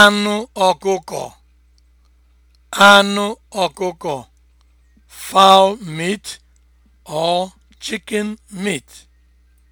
anụ ọkụkọ anụ ọkụkọ fowl meat or chicken meat